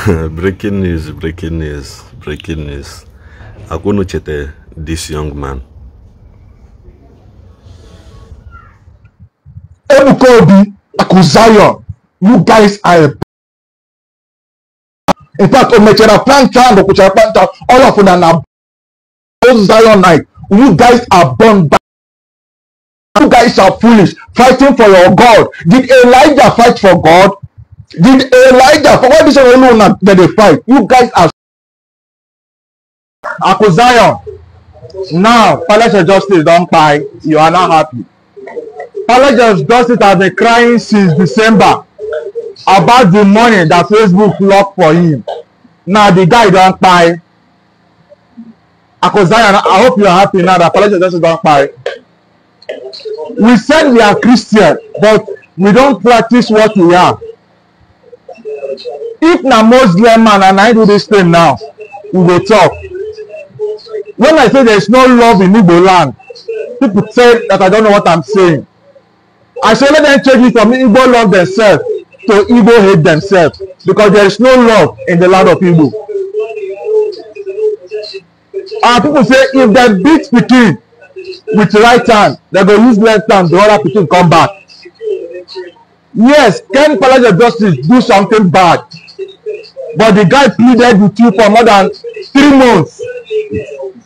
breaking news, breaking news, breaking news. Akunuchete, this young man. Ebuka Obi, Akuzayo, you guys are a in fact omecharaplanta and okwucharaplanta all of them are zionite you guys are born back you guys are foolish fighting for your god did elijah fight for god Did Elijah, For what reason saying no that they fight? You guys are Akuzayon. Now, Palace of Justice don't buy. You are not happy. Palace of Justice has been crying since December about the money that Facebook locked for him. Now the guy don't buy. Akuzayon, I hope you are happy now that Palace of Justice don't buy. We said we are Christian, but we don't practice what we are if na muslim man and i do this thing now we go talk when i say there is no love in igbo land people say that i don't know what i'm saying i say let them change it from igbo love themselves to igbo hate themselves because there is no love in the land of igbo and people say if dem beat pikin with right hand dem go use left hand the other pikin come back Yes, Ken Palace of Justice do something bad, but the guy pleaded with you for more than three months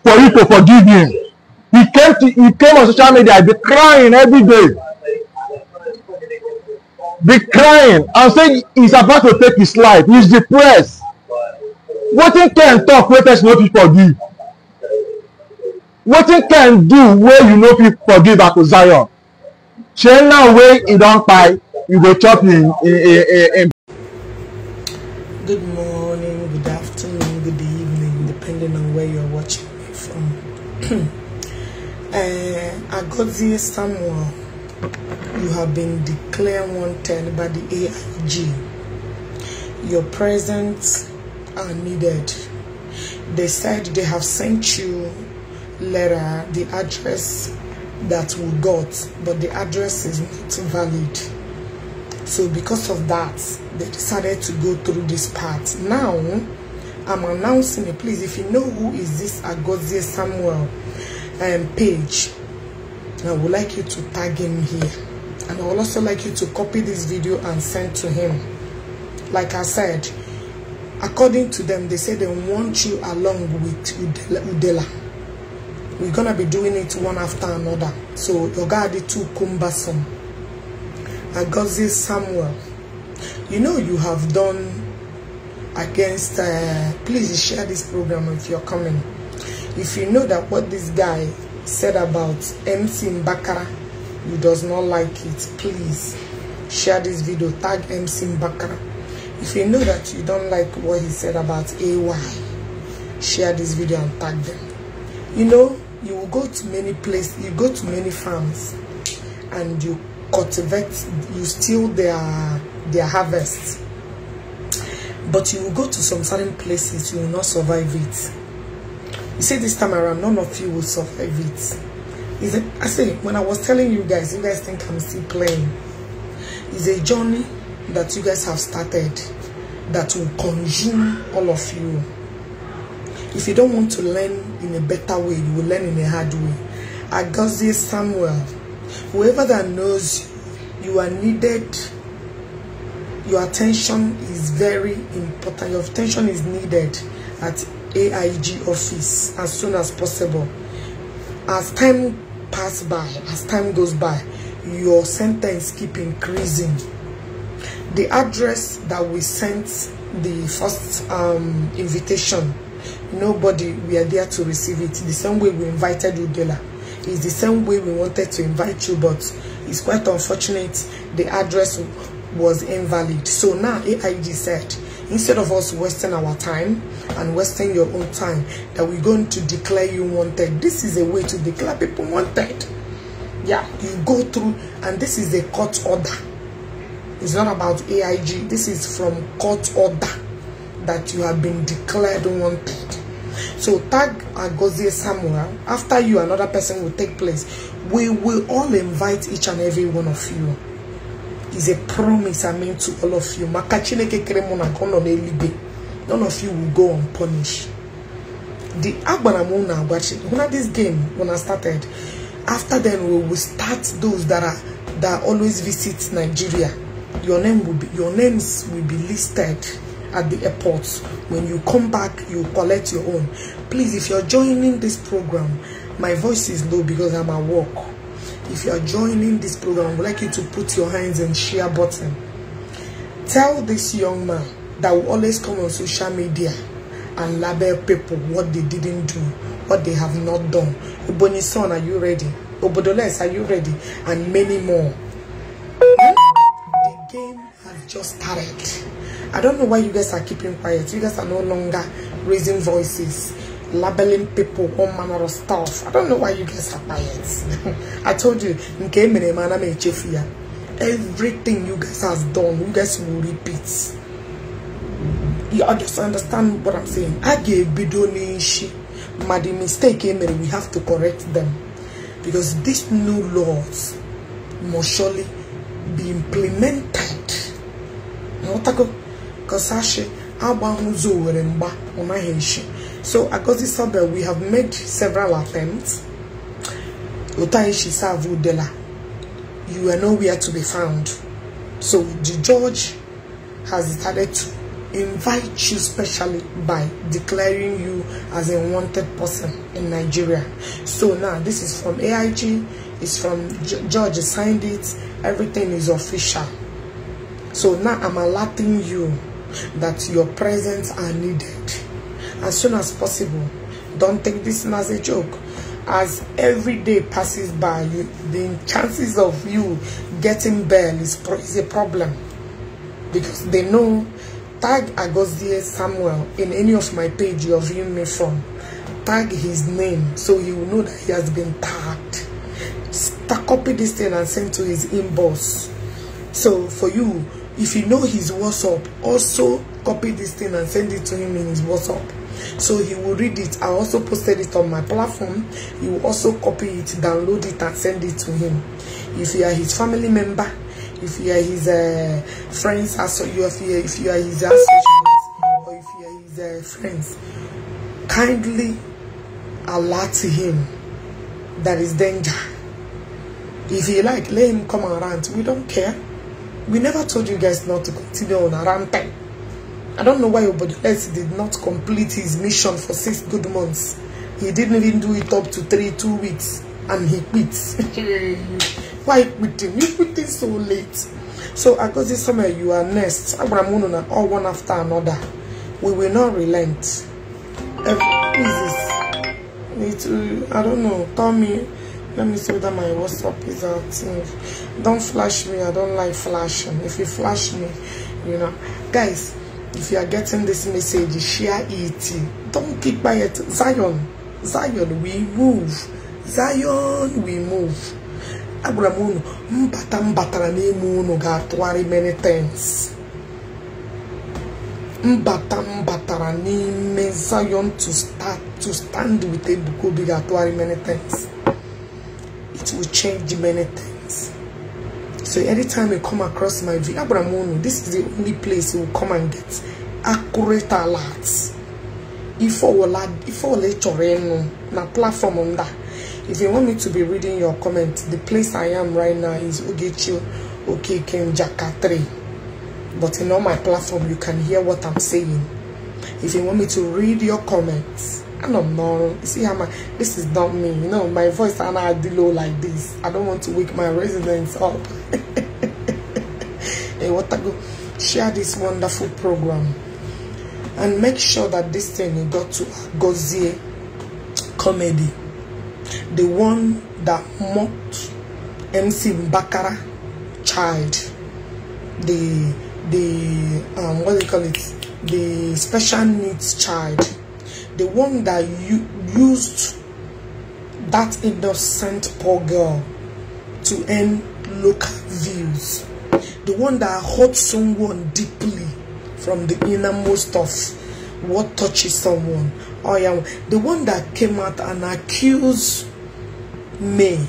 for you to forgive him. He came to he came on social media, be crying every day, be crying and say he's about to take his life. He's depressed. Wetin Ken talk wey person no fit forgive? Wetin Ken do wey you no fit forgive Akpo Zion? Shey now wey e don kpai you in, in, in, in. Good morning, good afternoon, good evening, depending on where you're watching me from. uh, this somewhere. you have been declared wanted by the AIG. Your presence are needed. They said they have sent you letter, the address that we got, but the address is not valid. So because of that, they decided to go through this part. Now, I'm announcing it. Please, if you know who is this Agozie Samuel um, page, I would like you to tag him here. And I would also like you to copy this video and send to him. Like I said, according to them, they say they want you along with Udela. We're going to be doing it one after another. So, your guard is too cumbersome. Agozi Samuel. You know you have done against, uh, please share this program if you're coming. If you know that what this guy said about MC Mbakara, you does not like it, please share this video, tag MC Mbakara. If you know that you don't like what he said about AY, share this video and tag them. You know, you will go to many places, you go to many farms and you cultivate, you steal their, their harvest. But you will go to some certain places, you will not survive it. You see, this time around, none of you will survive it. I say, when I was telling you guys, you guys think I'm still playing. It's a journey that you guys have started that will consume all of you. If you don't want to learn in a better way, you will learn in a hard way. Agassiz Samuel whoever that knows you are needed your attention is very important your attention is needed at AIG office as soon as possible as time pass by as time goes by your sentence keep increasing the address that we sent the first um, invitation nobody we are there to receive it the same way we invited Udela it's the same way we wanted to invite you, but it's quite unfortunate the address was invalid. So now AIG said, instead of us wasting our time and wasting your own time, that we're going to declare you wanted. This is a way to declare people wanted. Yeah, you go through, and this is a court order. It's not about AIG. This is from court order that you have been declared wanted. So tag Agozie Samuel. After you, another person will take place. We will all invite each and every one of you. It's a promise I made to all of you. None of you will go unpunished. The Agbanamuna watching. When this game, when I started, after then we will start those that are that always visit Nigeria. Your name will be your names will be listed at the airport. When you come back, you collect your own. Please, if you're joining this program, my voice is low because I'm at work. If you are joining this program, I would like you to put your hands and share button. Tell this young man that will always come on social media and label people what they didn't do, what they have not done. Uboni son, are you ready? Obodoles, are you ready? And many more. The game has just started. I don't know why you guys are keeping quiet. You guys are no longer raising voices, labeling people, all manner of stuff. I don't know why you guys are quiet. I told you, everything you guys have done, you guys will repeat. You just understand what I'm saying. I gave Bidonishi, but the mistake we have to correct them. Because these new laws must surely be implemented. You know, Kosashi, i Huzo Weremba, Unaheshi. So Agozi Sabel, we have made several attempts. Utaheshi Savu you are nowhere to be found. So the judge has decided to invite you specially by declaring you as a wanted person in Nigeria. So now this is from AIG, it's from George signed it, everything is official. So now I'm alerting you that your presence are needed as soon as possible. Don't take this as a joke. As every day passes by, you, the chances of you getting bail is, is a problem. Because they know, tag Agosia Samuel in any of my page you're viewing me from. Tag his name so you know that he has been tagged. Copy this thing and send to his inbox. So for you, if you know his WhatsApp, also copy this thing and send it to him in his WhatsApp. So he will read it. I also posted it on my platform. You will also copy it, download it, and send it to him. If you are his family member, if you are his uh, friends, also you are, if you are his associates, or if you are his uh, friends, kindly alert him that is danger. If you like, let him come around. We don't care. We never told you guys not to continue on around time. I don't know why Obodoles did not complete his mission for six good months. He didn't even do it up to three, two weeks, and he quits. why quitting? You quitting so late. So this summer you are next. Abramununa, all one after another. We will not relent. Every, who is this? It, uh, I don't know. Tommy. Let me tell that my WhatsApp is active. Don't flash me. I don't like flashing. If you flash me, you know. Guys, if you are getting this message, share it. Don't keep quiet. Zion. Zion, we move. Zion, we move. agwara m unu mbata na batara n'ime unu ga-atụgharị many times mbata m batara n'ime Zion to start to stand with a Obi ga-atụgharị many times it will change many things. So anytime you come across my video, Abramono, this is the only place you will come and get accurate alerts. If I will add, if I will let your na platform on that. If you want me to be reading your comments, the place I am right now is Ogechi Okekenjaka 3. But in all my platform, you can hear what I'm saying. If you want me to read your comments, I'm normal. see how my this is not me. You know, my voice and I do low like this. I don't want to wake my residents up. hey, what I go share this wonderful program and make sure that this thing got to Gozie comedy. The one that mocked MC Bakara child. The the um what do you call it? The special needs child the one that you used that innocent poor girl to earn local views the one that hurt someone deeply from the innermost of what touches someone Oh yeah. the one that came out and accused me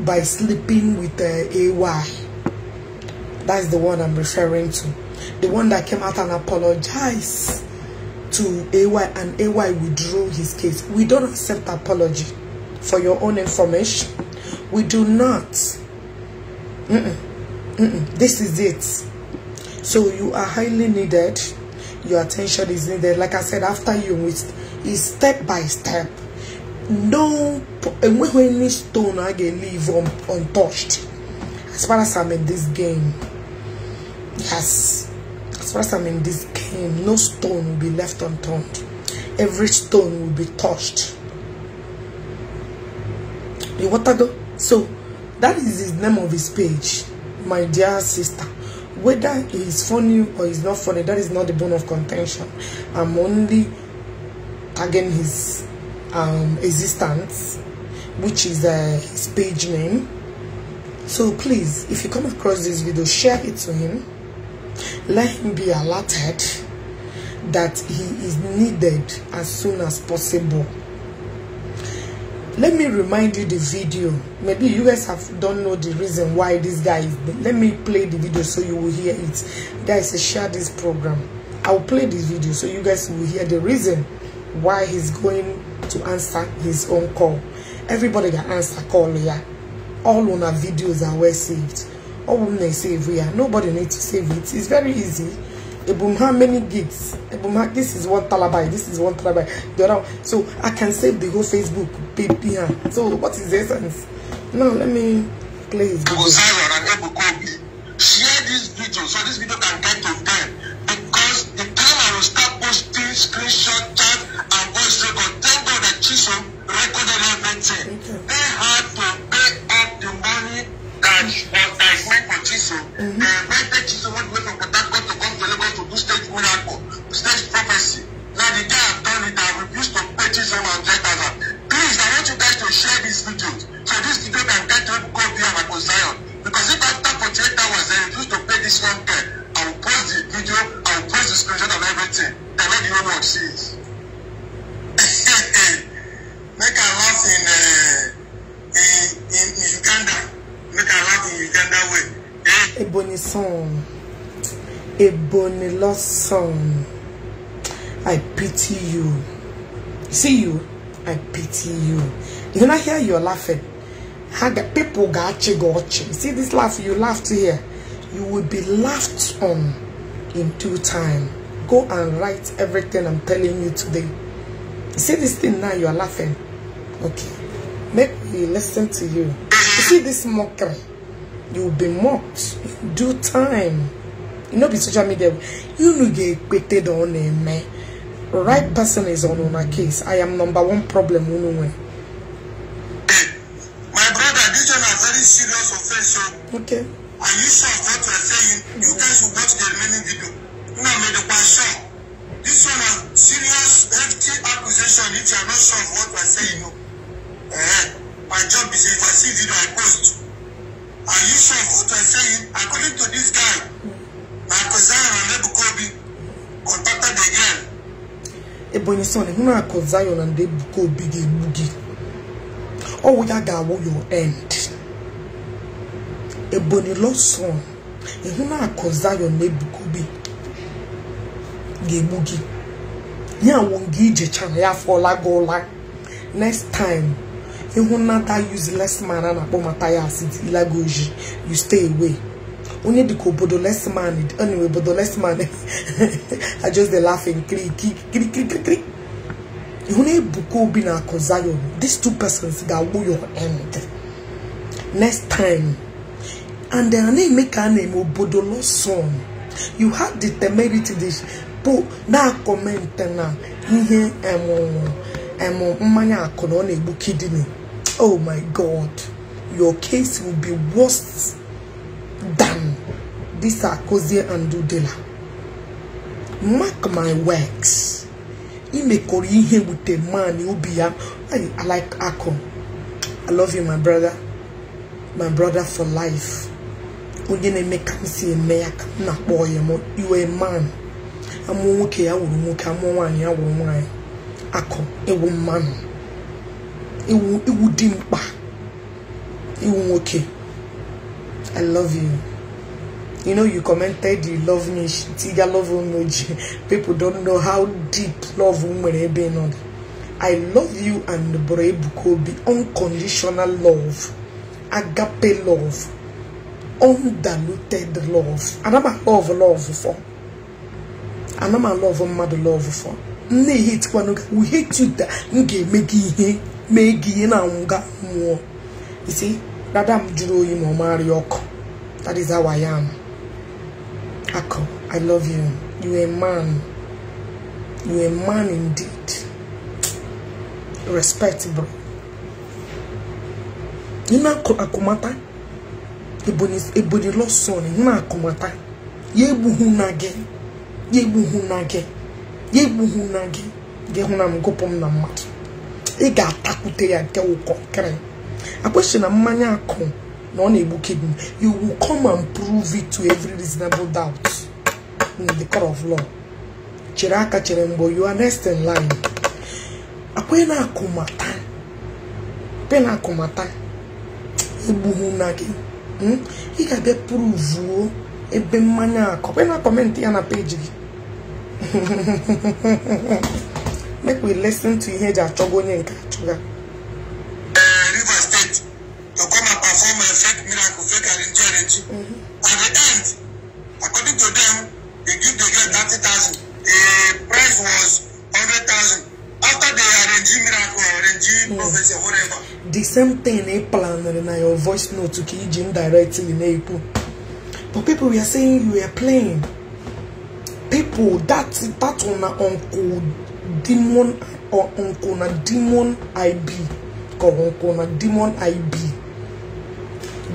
by sleeping with uh, ay that's the one i'm referring to the one that came out and apologized to AY and AY withdrew his case. We don't accept apology for your own information. We do not. Mm -mm, mm this is it. So you are highly needed. Your attention is needed. Like I said, after you, it's step by step. No, and any stone I can leave un untouched. As far as I'm in this game, yes. As far as I'm in this him, no stone will be left unturned. Every stone will be touched. The water go. So, that is the name of his page, my dear sister. Whether it's funny or it's not funny, that is not the bone of contention. I'm only tagging his um, existence, which is uh, his page name. So please, if you come across this video, share it to him let him be alerted that he is needed as soon as possible. Let me remind you the video. Maybe you guys have don't know the reason why this guy is. Let me play the video so you will hear it. Guys, share this program. I'll play this video so you guys will hear the reason why he's going to answer his own call. Everybody that answer call, yeah. All on our videos are well saved ọwụm save it. nobody need to save it it's very easy ebum how many gigs ebum this is one talabai this is one talabai so i can save the whole facebook baby so what is the essence now let me play share this video so this video can get to them because the time i will start posting screenshot chat and voice record thank god that chisom recorded everything they had much, but I went for Jesus. when the Jesus went away from Patagon to come to Lagos to do stage miracle, stage prophecy. Now the guy have done it, I refuse to pay Jesus and get other. Please, I want you guys to share this video so this video can get to go beyond Zion. Because if after 48 hours I refuse to pay this one guy, I will post the video, I will post the screenshot and everything. And the whole world see Make a laugh in, uh, in, in Uganda mẹ́ta láti uganda wẹ̀. èbò ni sàn èbò ni i pity you see you i pity you you no hear your laughing people got you gị see this laugh you laughed here you will be laughed on in due time go and write everything i'm telling you today see this thing now you are laughing okay they listen to you. You see this mockery, you will be mocked do time. You know, be social media, you know, get quitted on a man. Right person is on on a case. I am number one problem. bụ onye na akụ Zion na ndị Obi ga-egbu gị ọwụ ya ga-awụ your end Ebonyi lọsọn ịhụ na akụ Zion na Ebuka Obi ga-egbu gị ya wụ nga ijechara ya fọla gị ụla next time ịhụ na that useless man na-akpọ Mathias dilagoji you onye dịka obodo lesman anyway less lesman i just the laughing click, click, click, click. obi na akụ zion these two persons ga-agwụ your end next time and their name make ka a na-eme you have the temerity this bụ na comment na ihe emụ mmanya akụ na ọ oh my god your case will be worst than this Akozie Andudela. Mark my works. Imekoro ihe with a man ya. I like Akon. I love you my brother. My brother for life. Onye na-eme ka m si eme ya ka m na-akpọ ya m iwe man. Amụọ nwoke ya wuru nwoke amụọ nwaanyị ya wuru nwaanyị. Akọ ewu mmanụ. iwu iwu dị mkpa. iwu nwoke. I love you. You know, you commented you love me. Tiga love unoji. People don't know how deep love umwerebe no. I love you and Burebukobi. Unconditional love. Agape love. Undiluted love. Anama love love for. Anama love mmadụ love for. Nne hitkwana we hate you that m ga-eme gị ihe mee na nwụga mmụọ. You see? dada m jụrụ oyi ma ọ ya ọkụ that is how I am akọ I love you you a man you a man indeed respect bro n'ime akụmata ebonyi lọsọn na akụmata ya egbu hụ na gị ya egbu hụ na gị ya egbu hụ na gị gị hụ na m gụpụ m na mmadụ ị ga-atakwute ya nke ụkọ kere akpọsi na mmanya akụ na ọ na-egbu kidney you will come and prove it to every reasonable doubt in the court of law chere aka chere mgbe you are next in line akwa na-akụmata pena akụmata egbughị na gị hmm? ị ga-abịa pruvuo ebe mmanya akọ na kọmentị ya na page gị make we listen to ihe eji achọgo onye nke achọga community. Mm-hmm. At the end, according to them, they give the girl thirty thousand. The price was hundred thousand. After they arrange miracle, arrange yes. prophecy, whatever. The same thing they planned in your voice note to keep Jim directly in April. But people we are saying you are playing. People that that on uh, uncle demon or uh, uncle na demon IB. Uncle na demon IB.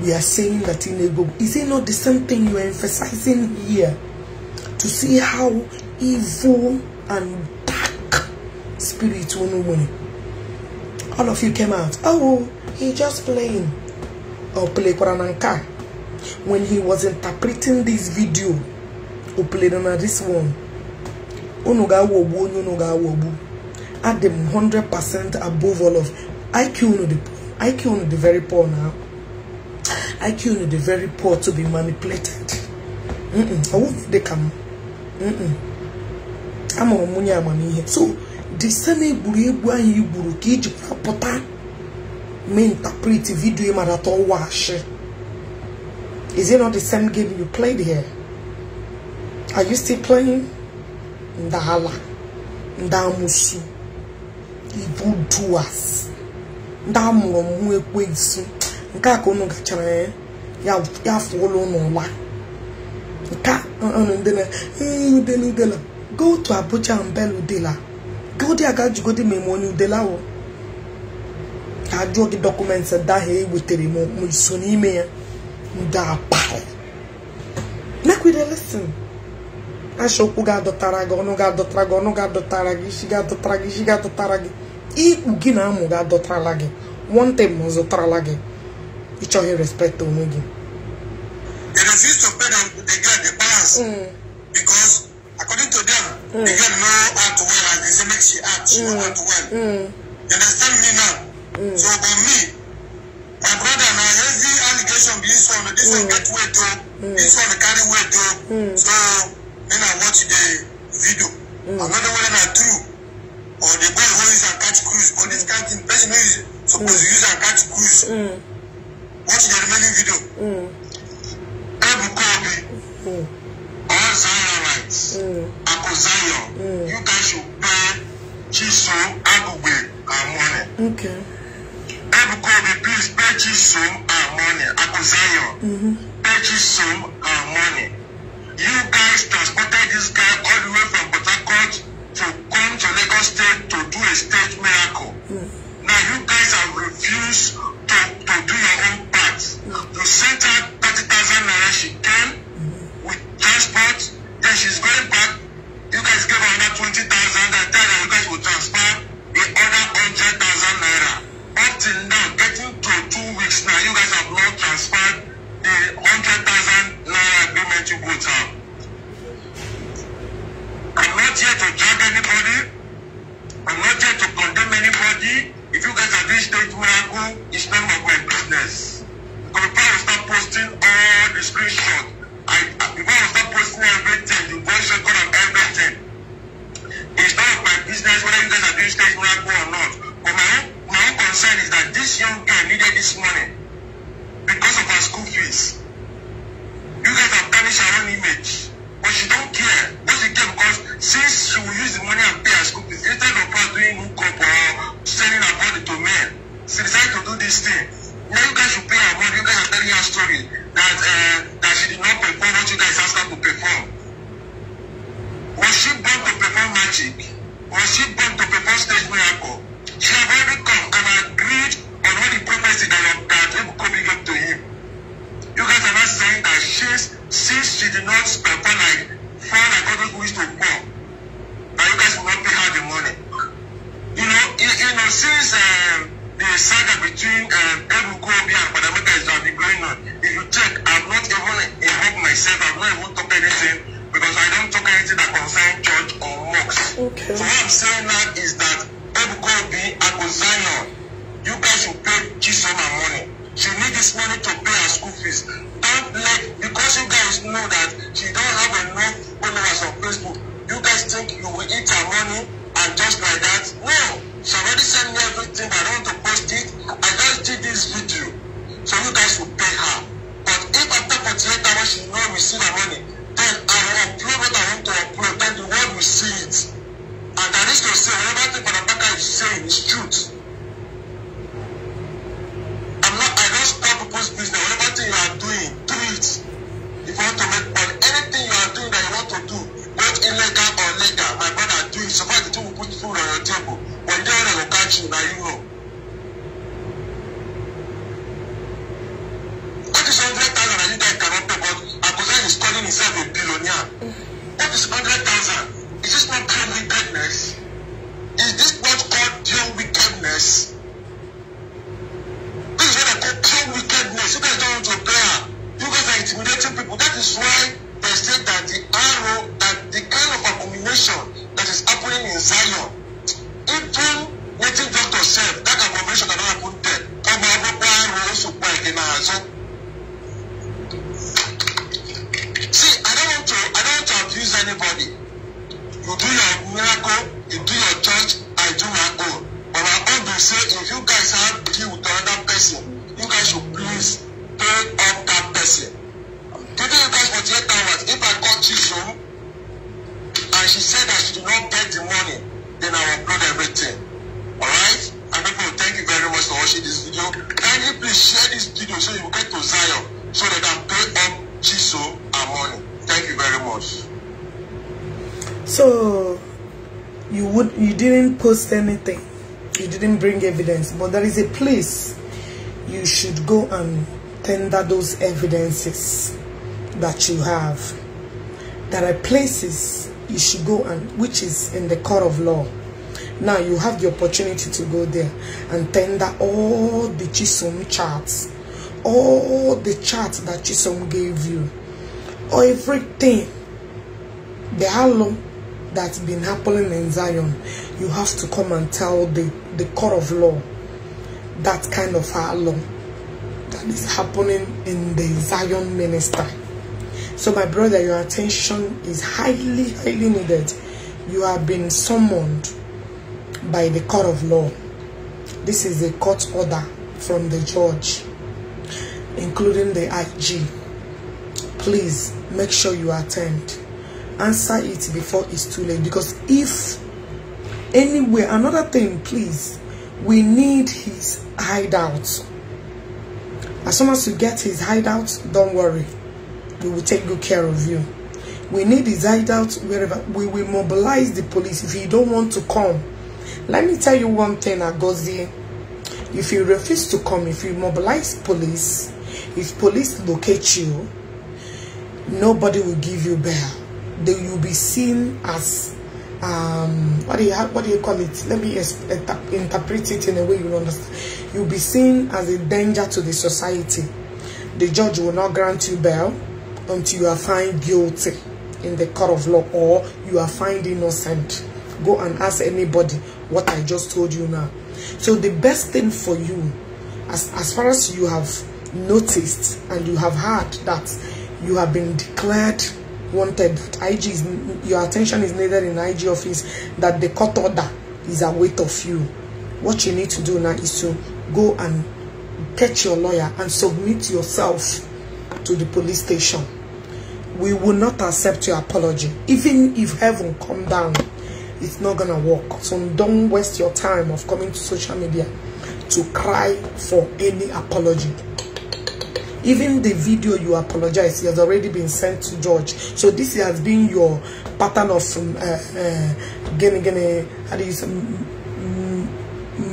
we are saying that in Igbo. Is it not the same thing you are emphasizing here? To see how evil and dark spirit win. All of you came out. Oh, he just playing. Or oh, play Korananka. When he was interpreting this video, or oh, played on this one. Onuga wobu, onuga wobu. At the 100% above all of IQ, IQ, the very poor now. IQ the very poor to be manipulated. Mm -mm. I won't they come. Mm -mm. I'm on money, here. So, the same egwuregwu anyị gburu ka iji pụta mee interpret video marata ọwa ashị is it not the same game you played here are you still playing ndala ndamusu ibu duas ndị amụrụ ekwensu nke a ka unu gachara ya ya unu ụla nke unu ndị na udela udela go to abuja mbel udela go there ga jugodi ma eme onye udela ahụ ka ajụọ gị dọkụmentị ndị ahụ ewetere m iso n'ime ya ndị apahị mekwide lesin ashaokwu ga-adọtara gị ọnụ ga-adọtara gị ọnụ ga-adọtara gị isi ga-adọtara gị isi ga-adọtara gị ikpu gị na amụ ga-adọtara gị one thing ma ọ zụtarala gị each other respect to Omugi. They refuse to pay them mm. because according to them, mm. the know how to well and they make act, she mm. know how to mm. well. Mm. understand me now? So for me, my brother now heavy allegation this one, this one get weight to, oh. this one carry weight to. Oh. So then I watch the video. Mm. Another one I true. Or the boy who is a catch cruise, or this kind of person who is supposed use a catch cruise. Mm watch the remaining video. Ebuka Obi, all Zionites, Ako Zion, you guys should pay Chiso Agugbe our money. Okay. Ebuka Obi, please pay Chiso our money. Ako Zion, mm-hmm. pay Chiso our money. You guys transported this guy all the way from Port Harcourt to come to Lagos State to do a state miracle. Mm. Now you guys have refused to, to do your own We sent her 30,000 naira. She came with transport. Then she's going back. You guys gave her another 20,000. I tell her you guys will transfer the other 100,000 naira. Up till now, getting to two weeks now, you guys have not transferred the 100,000 naira agreement you put out. I'm not here to judge anybody. I'm not here to condemn anybody. If you guys have reached that miracle, it's none of my business. Until you start posting all the screenshots, I, I, when you start posting everything, the voice record and everything, it's not of my business whether you guys are doing stage miracle or not. But my own, my own concern is that this young girl needed this money because of her school fees. You guys have tarnished her own image. But she don't care. What she care because since she will use the money and pay her school fees, instead of her doing hookup or sending her body to men, she decided to do this thing history that uh, that she did not perform what she was asked her to perform? Was she born to perform magic? Was she born to perform stage miracle? Now this girl said, what about the Barabaka is saying is true. share this video so you get to Zion so they can pay up Chiso and money. Thank you very much. So you would you didn't post anything. You didn't bring evidence, but there is a place you should go and tender those evidences that you have. There are places you should go and which is in the court of law now you have the opportunity to go there and tender all the Chisom charts, all the charts that Chisom gave you, everything, the halo that's been happening in Zion, you have to come and tell the, the court of law that kind of halo that is happening in the Zion minister. So my brother, your attention is highly, highly needed. You have been summoned by the court of law. This is a court order from the judge, including the IG. Please make sure you attend. Answer it before it's too late because if anyway, another thing, please, we need his hideout. As soon as you get his hideout, don't worry. We will take good care of you. We need his hideout wherever. We will mobilize the police. If you don't want to come, Let me tell you one thing, Agosi. If you refuse to come, if you mobilize police, if police locate you, nobody will give you bail. They will be seen as um what do you what do you call it? Let me interpret it in a way you understand. You'll be seen as a danger to the society. The judge will not grant you bail until you are found guilty in the court of law or you are found innocent. Go and ask anybody what I just told you now. So the best thing for you, as, as far as you have noticed and you have heard that you have been declared wanted, IG is, your attention is needed in IG office, that the court order is a weight of you. What you need to do now is to go and get your lawyer and submit yourself to the police station. We will not accept your apology, even if heaven come down it's not gonna work so don't waste your time of coming to social media to cry for any apology even the video you apologize has already been sent to George. So this has been your pattern of um, uh, uh, gene, gene, how do you say,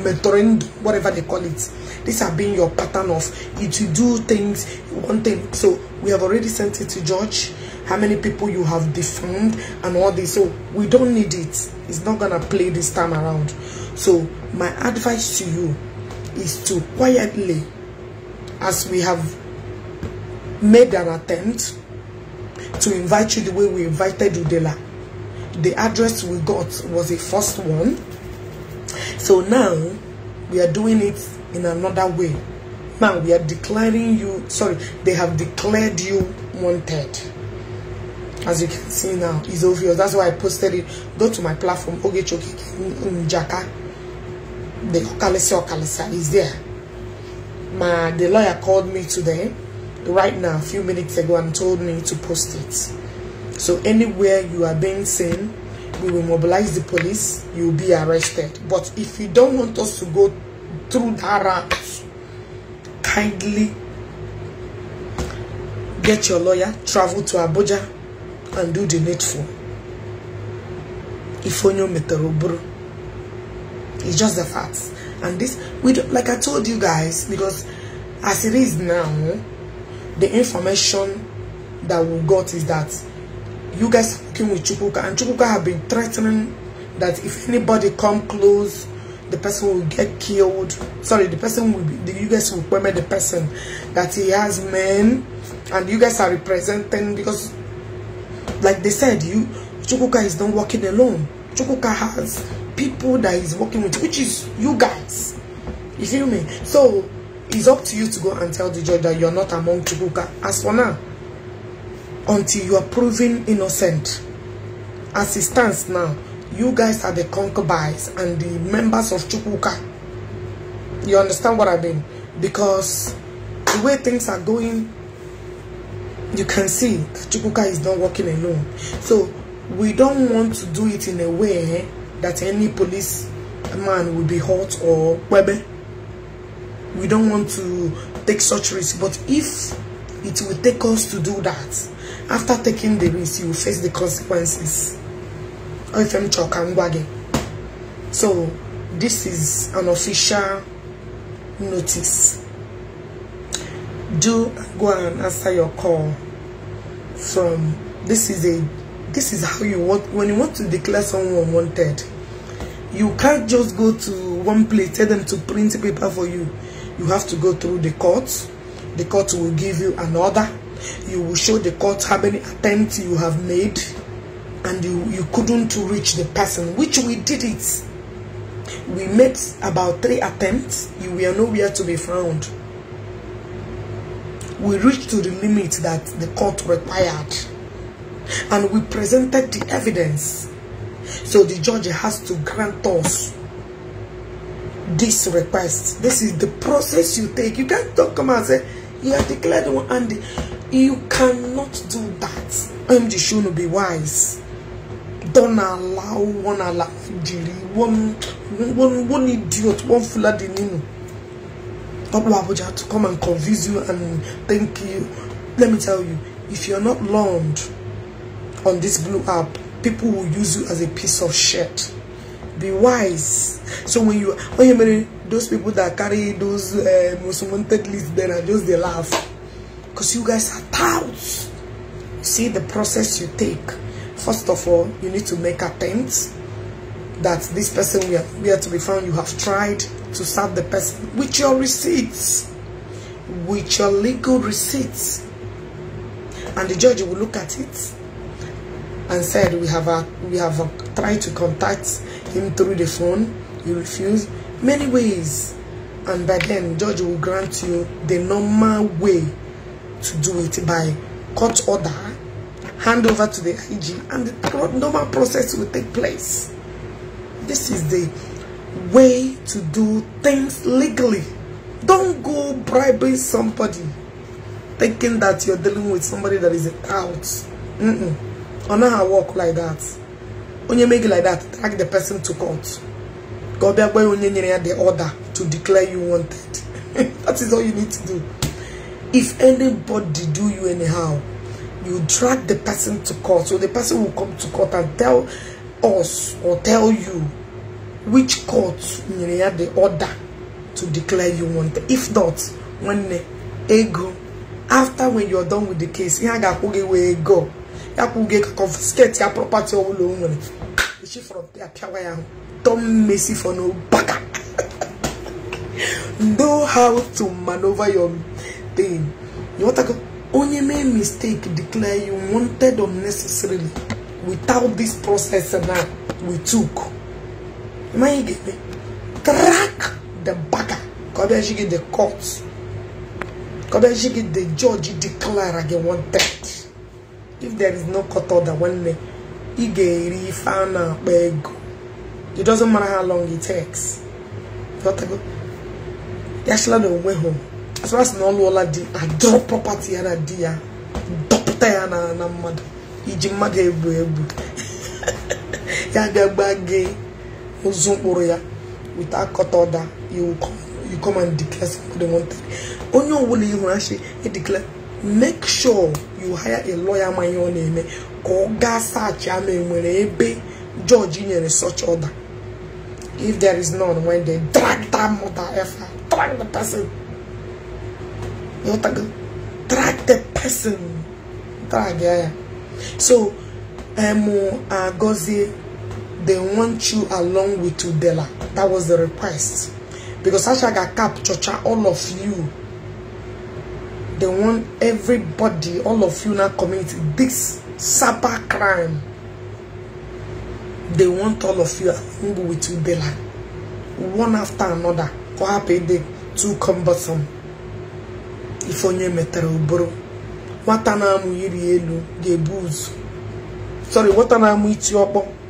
mentoring, whatever they call it. This has been your pattern of if you do things, one thing. So we have already sent it to George how many people you have defamed and all this so we don't need it it's not gonna play this time around so my advice to you is to quietly as we have made an attempt to invite you the way we invited Udela the address we got was a first one so now we are doing it in another way now we are declaring you sorry they have declared you wanted as you can see now it's obvious that's why i posted it go to my platform ogechoki Jakarta. the okalese okalesa is there my the lawyer called me today right now a few minutes ago and told me to post it so anywhere you are being seen we will mobilize the police you'll be arrested but if you don't want us to go through that route kindly get your lawyer travel to abuja and do the needful if only meterobro it's just the facts and this we do, like i told you guys because as it is now the information that we got is that you guys came with chukuka and chukuka have been threatening that if anybody come close the person will get killed sorry the person will be the, you guys will permit the person that he has men and you guys are representing because like they said, you Chukuka is not working alone. Chukuka has people that he's working with, which is you guys. You feel me? So it's up to you to go and tell the judge that you're not among Chukuka. As for now, until you are proven innocent, as it stands now, you guys are the concubines and the members of Chukuka. You understand what I mean? Because the way things are going you can see Chukuka is not working alone. So we don't want to do it in a way that any police man will be hurt or webe. We don't want to take such risk. But if it will take us to do that, after taking the risk, you will face the consequences. So this is an official notice do go and answer your call from this is a this is how you want when you want to declare someone wanted you can't just go to one place tell them to print paper for you you have to go through the courts the court will give you an order you will show the court how many attempts you have made and you you couldn't reach the person which we did it we made about three attempts you were nowhere to be found we reached to the limit that the court required. And we presented the evidence. So the judge has to grant us this request. This is the process you take. You can't talk, come and say, you have declared one and you cannot do that. I'm sure to be wise. Don't allow one allow one one one idiot, one full of the nino. Popular Abuja to come and convince you and thank you. Let me tell you, if you're not learned on this blue app, people will use you as a piece of shit. Be wise. So when you when you marry those people that carry those uh, most wanted lists, then I just they laugh because you guys are touts. See the process you take. First of all, you need to make attempts that this person we are to be found. You have tried to serve the person with your receipts, with your legal receipts. And the judge will look at it and said, we have, a, we have a, tried to contact him through the phone. He refused Many ways. And by then, judge will grant you the normal way to do it by court order, hand over to the IG, and the normal process will take place. This is the way to do things legally. Don't go bribing somebody thinking that you're dealing with somebody that is out. Mm-mm. Or not how work like that. When you make it like that, drag the person to court. Go that way when you the order to declare you wanted. that is all you need to do. If anybody do you anyhow, you drag the person to court. So the person will come to court and tell us or tell you which court nyere ya the order to declare you wanted if not nwanne ego after when you are done with the case ihe a ga-akwụ gị wee go ya kwụ gị confiscate ya property ọbụla o nwere echi fọrọ pịawa ya tom messi for no baka know how to maneuver your thing you want to onye mee mistake declare you wanted unnecessarily without this process na we took mmanya ga-eme trak the baka ka ọ bịaji gị the court ka gị the judge declare if there is no court order ị ga-eri ife a na-akpa ego it doesn't matter how long it takes yachila na onwe ha asịmasị na ọ lụọla di ya na di ya dọpụta ya na mmadụ iji mmadụ egbu egbu ya ga ozu mkpụrụ ya wit akọta ọda you come and declare somebody wanted onye ọbụla ihu e declare make sure you hire a lawyer ma ihe ọ na-eme ka ọ gaa saachị ama enwere ebe george nyere such order if there is none when they drag that mother efa drag the person ịghọtago drag the person drag ya ya so emu um, uh, agọzie they want you along with Udela. That was the request. Because Ashaga Cap, Chocha, all of you, they want everybody, all of you now community, this cyber crime. They want all of you along with Udela. One after another. Ko happy day, too cumbersome. If onye metere uburu. Nwata na-amụ iri elu ga-ebu Sorry, what na-amụ iti ọkpọ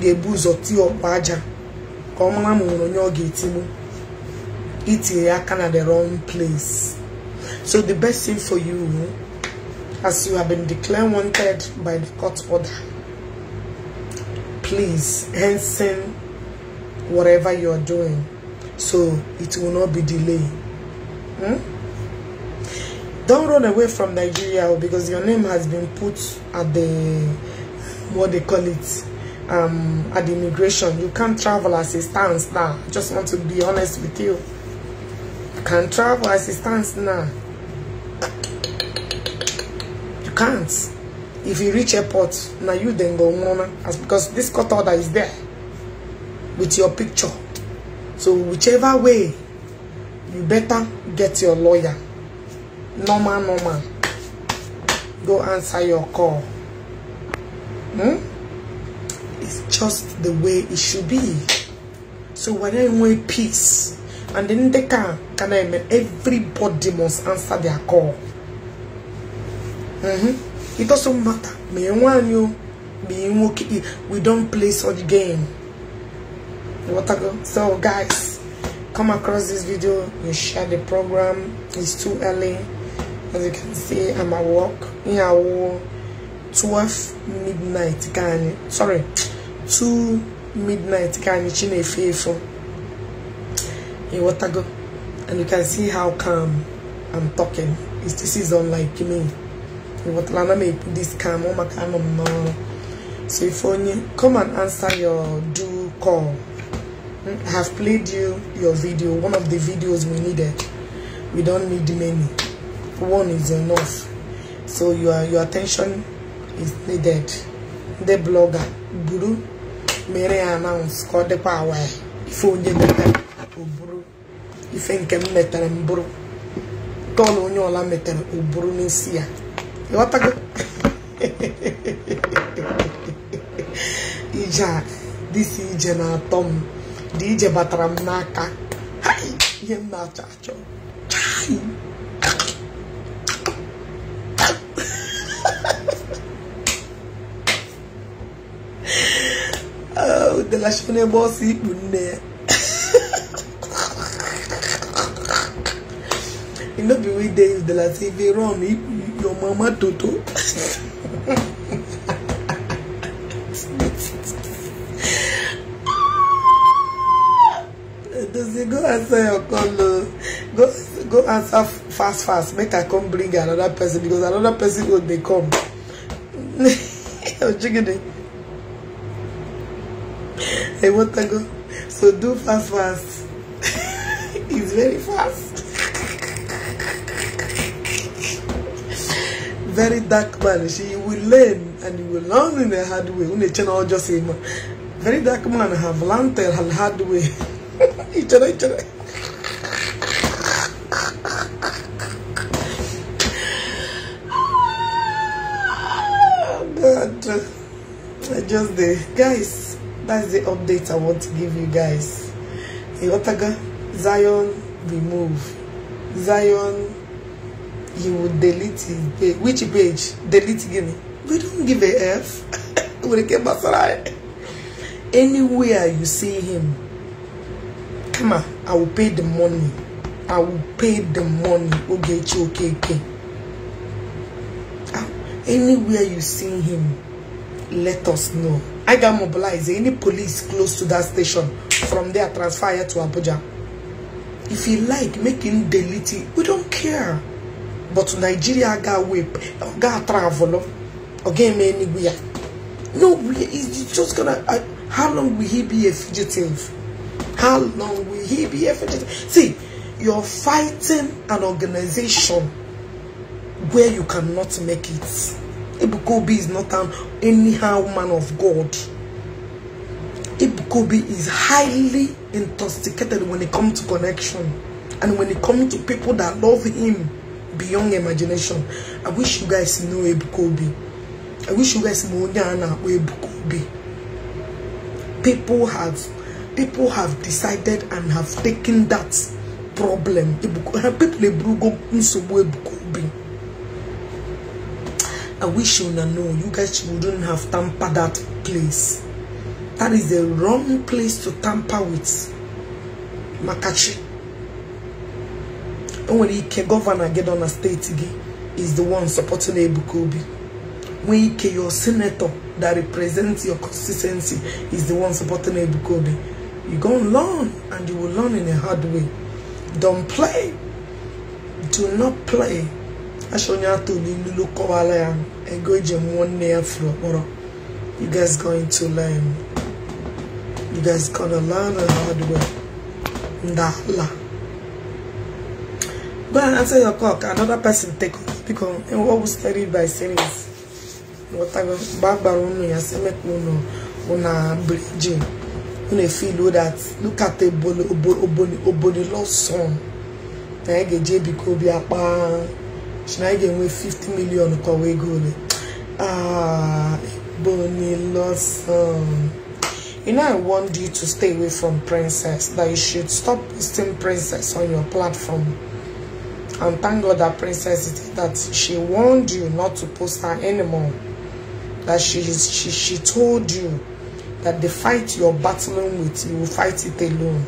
ga-ebu ụzọ tie ọkpa aja ka ọ mara ma nwere onye ọ ga-etigbu itinye ya aka na the wrong place so the best thing for you as you have been declared wanted by the court order please hasten whatever you are doing so it will not be delayed hmm? don't run away from Nigeria because your name has been put at the what they call it um, at immigration. You can't travel as it stands now. I just want to be honest with you. You can't travel as it stands now. You can't. If you reach airport, now you then go on. As because this cut order is there with your picture. So whichever way, you better get your lawyer. Normal, normal. Go answer your call. Hmm? is just the way it should be. So when I want peace, and then they can, can I mean, everybody must answer their call. Mm -hmm. It doesn't matter. Me want you, being okay. We don't play such game. What I go? So guys, come across this video. You share the program. It's too early. As you can see, I'm at work. Yeah, 12 midnight. Can sorry. 2 midnight you anyị in, faithful? efe ịghọtago and you can see how calm I'm talking It's, this is unlike me What na m ekwu this calm on my m so if onye come and answer your do call hmm, I have played you your video one of the videos we needed we don't need many one is enough so your your attention is needed the blogger guru mere ya announce ka ọ dịkwa awa ya ife onye metere o ife nke m metere m bụrụ onye ọla metere o n'isi ya ịghọtago ije a dịsi ije na-atọ m dị ije batara m n'aka ihe m na-achọ achọ chai ngalashị onye gba ọsọ ikpu nne ya e no be we dey use the latin run ikpu your mama toto Does go answer your call? Go go answer fast fast. Make I come bring another person because another person go dey come. You're jigging I want to go. So do fast, fast. it's very fast. very dark man. She will learn and you will learn in a hard way. When channel just him. Very dark man have learned her hard way. each other, each other. God, I just the guys. that's the update I want to give you guys. Yotaga, Zion, remove. Zion, you will delete his page. Which page? Delete again. We don't give a F. We Anywhere you see him, come on, I will pay the money. I will pay the money. Okay, okay, okay. Ah, anywhere you see him, let us know. I got mobilized. Any police close to that station from there transfer here to Abuja. If you like, make him delete it. We don't care. But Nigeria got whip, got travel, again anywhere. No, he's just gonna. Uh, how long will he be a fugitive? How long will he be a fugitive? See, you're fighting an organization where you cannot make it. Ibukobi is not an anyhow man of God. Ibukobi is highly intoxicated when it comes to connection. And when it comes to people that love him beyond imagination. I wish you guys know Ibukobi. I wish you guys know Nyana Ibukobi. People have people have decided and have taken that problem. People I wish you know, have You guys wouldn't have tampered that place. That is the wrong place to tamper with. Makachi. When the governor get on a state again, is the one supporting Ebukobi. When Ike, your senator that represents your constituency is the one supporting Ebukobi, You go and learn and you will learn in a hard way. Don't play. Do not play. asha onye atụ kọwala ya ego eji nwanne ya furu kpọrọ you guys going to learn you guys gonna learn the hard way ndala go and answer your clock another person take off because what was studied by series whatever barbara unu ya say make unu una bridging unu feel that na ege si na anyị ga-enwe 50 million kọwa ego ole ah, Bonilson you know I warned you to stay away from princess that you should stop posting princess on your platform and thank God that princess that she warned you not to post her anymore that she is, she she told you that the fight you're battling with you will fight it alone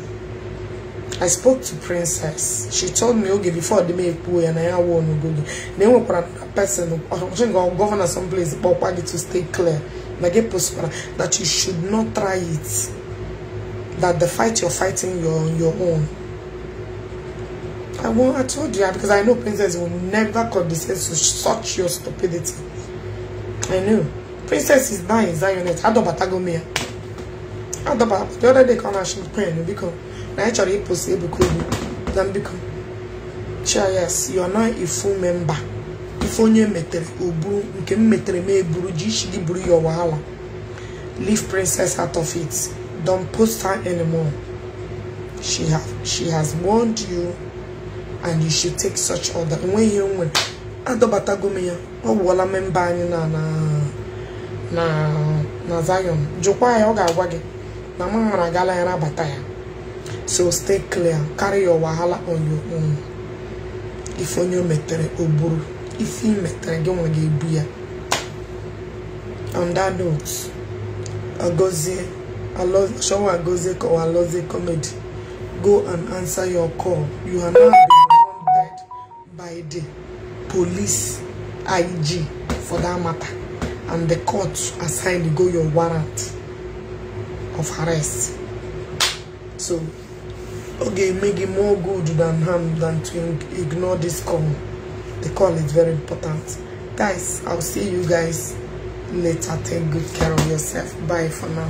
I spoke to Princess. She told me, okay, before the make pool and I won't go. Then we put a person, or think our governor someplace, but I to stay clear. That you should not try it. That the fight you're fighting, you're on your own. I won't, I told you, because I know Princess will never condescend to such your stupidity. I know. Princess is dying, Zionet. don't Adobatago. The other day, come and she's praying because. na anyị chọrọ ịpụsị ebuko obi na mbikọ chies you na not ifu memba ife onye metere oburu nke m metere m eburu ji ishili buru ya wahala leave princess out of it don post her anymore she have she has warned you and you should take such order enweghị ihe nwere adọbatago m ya ọ gwụọla memba anyị na na na na Zion jụkwa ya ọ ga-agwa gị na mụ mara gala ya nabata ya so stay clear carry your wahala on your own If on your metere o if ife ị metere gị nwe ga on that note agozie showa agozie kọwa alozie comedy go and answer your call you are now wanted by the police IG for that matter and the court assigned go your warrant of arrest so Okay, make it more good than harm than to ignore this call the call is very important guys i'll see you guys later take good care of yourself bye for now